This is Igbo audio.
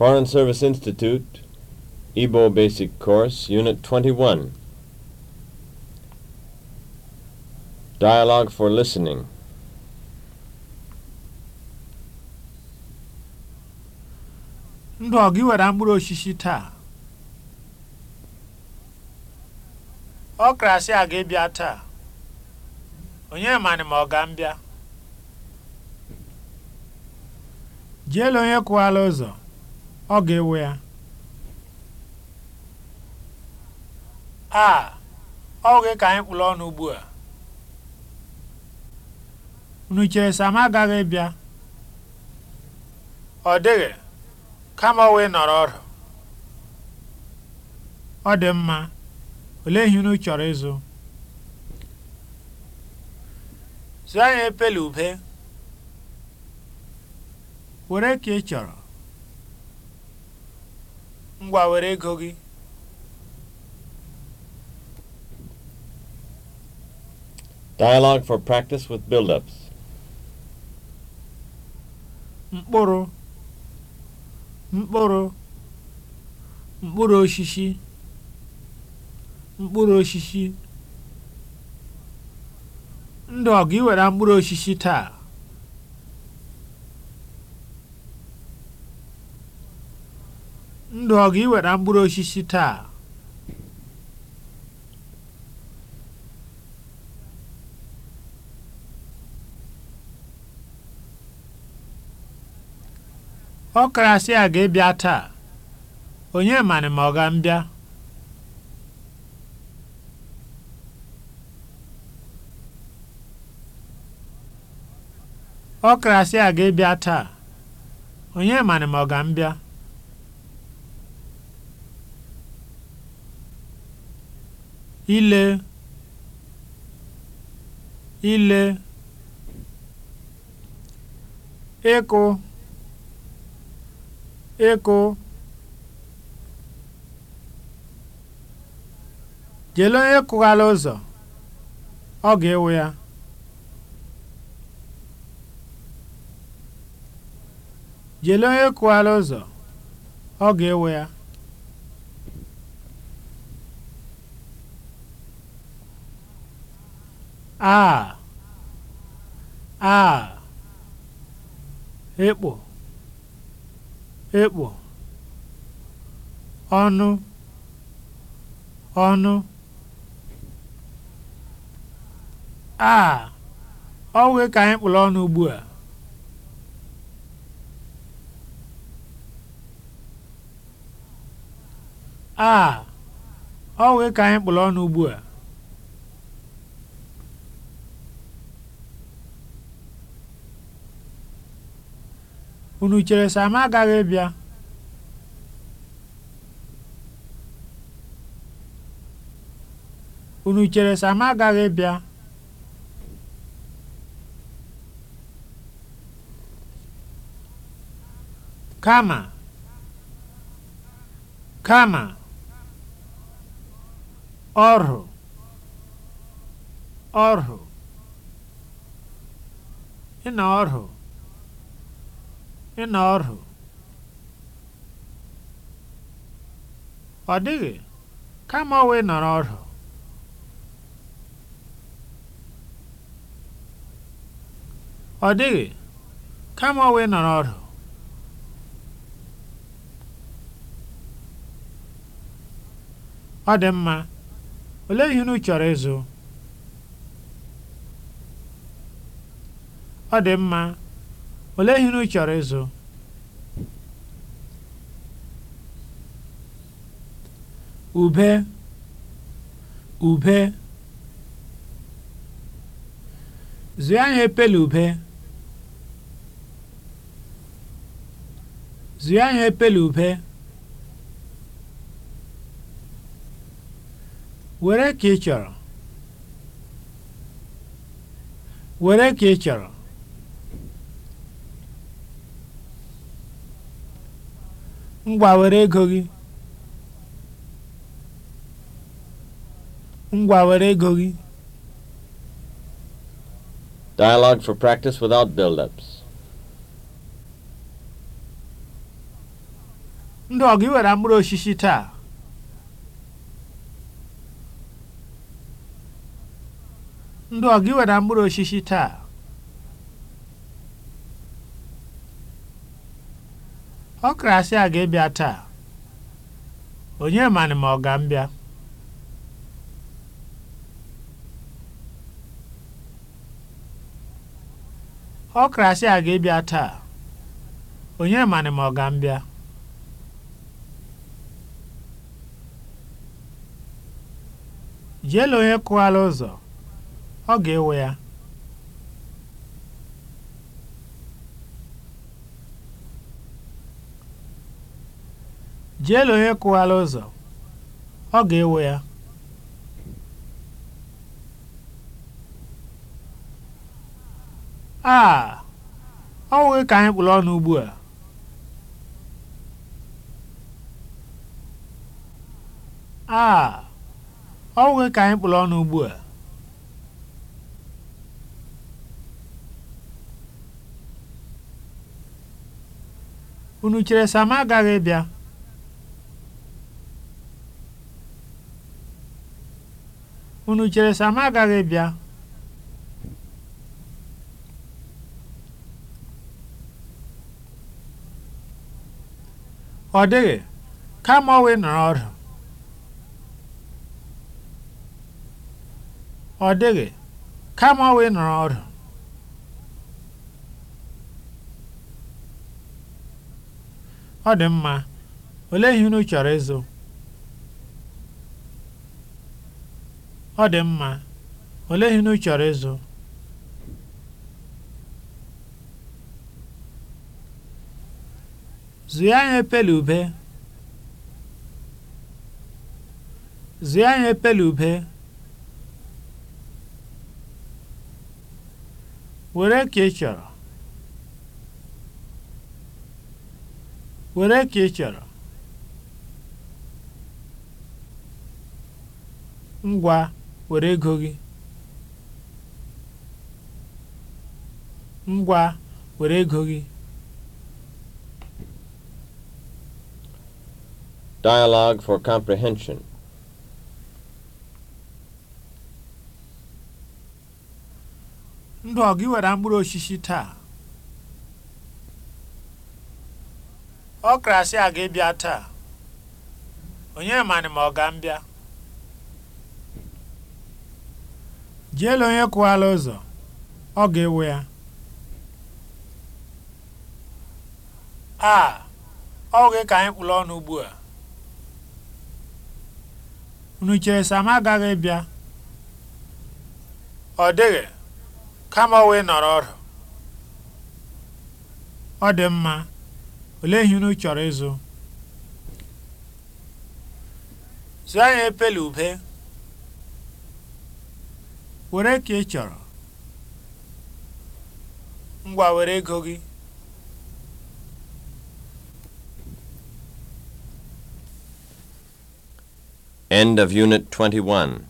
Foreign Service Institute, Ibo Basic Course, Unit 21. Dialogue for Listening. Ndụ ọ were mkpụrụ osisi taa? Ọ krasị a aga ebia taa. Onye manị ma ọ ga-mbịa? Jee onye kwụwala ụzọ. ọ ga-ewe ya a ọgwụ gị ka anyị kpụrụ ọnụ ugbu a unu chere Sam agaghị bịa ọ dịghị kama nọrọ ọrụ ọ dị mma olee ihe unu chọrọ ịzụ zụọ anyị epele ube were ka ị chọrọ ngwa were ego gị Dialogue for practice with build-ups. Mkpụrụ mkpụrụ mkpụrụ osisi mkpụrụ osisi ndụ ọ ga mkpụrụ osisi taa ndụ ọgụ ga mkpụrụ osisi taa ọkarasị a ga-ebịa taa onye emani ma ọ ga-mbịa ọkarasị a ga-ebịa taa onye ma ọ ga-mbịa ile ile ịkụ ịkụ onye ịkụghala ụzọ ọ ga-ewu ụzọ ọ ga-ewu ya a a ekpo ekpo ọnụ ọnụ a ọ ka anyị kpụrụ ọnụ ugbu a a ọ ka anyị kpụrụ ọnụ ugbu a unu chere Sam agaghị bịa unu chere Sam agaghị bịa kama kama ọrụ ọrụ na ọrụ ịnọ ọrụ ọ dịghị kama ọwa ịnọrọ ọrụ ọ dịghị kama ọwa ịnọrọ ọrụ ọ dị mma olee ihe unu chọrọ ịzụ ọ dị mma Olee ihe unu chọrọ ịzụ? Ube, ube. Zụọ ihe epele ube. Zụọ ihe epele ube. Were ka ị chọrọ. Were ka ị chọrọ. ngwa were ego gị ngwa were ego gị Dialogue for practice without build-ups. Ndị ọgụ iwere mkpụrụ osisi taa. Ndị ọgụ iwere mkpụrụ osisi taa. ọ asị a ga-ebịa taa onye manị ma ọ ga mbịa ọ a ga-ebịa taa onye manị ma jeela onye kụwara ụzọ ọ ga-ewe ya jeele onye kụghala ụzọ ọ ga-ewe ya a ọ nweghị ka anyị kpụrụ ọnụ ugbu a a ọ nweghị ka anyị kpụrụ ọnụ ugbu a unu chere sama agaghị bịa unu chere sa agaghị bịa ọ dịghị kama ọwụ nọrọ ọrụ ọ dịghị kama ọwụ nọrọ ọdụ ọ dị mma olee ihe unu chọrọ ịzụ Ọ dị mma, olee ihe ị chọrọ ịzụ? Zụọ anyị epele ube. ube. Were ka ị chọrọ. Were ka ị chọrọ. Ngwa. were ego gị ngwa were ego gị Dialogue for comprehension. ndụ ọ gị were mkpụrụ osisi taa ọ krasị a ga ebia taa onye manị ma ọ ga mbịa jeela onye kwụwala ụzọ ọ ga-ewe ya a ọ gị ka anyị kpụrụ ọnụ ugbu a unu chere agaghị bịa ọ dịghị kama ọ wee nọrọ ọrụ ọ dị mma olee ihe unu chọrọ ịzụ zụọ anyị epele ube were ka ị chọrọ ngwa were ego gị End of Unit 21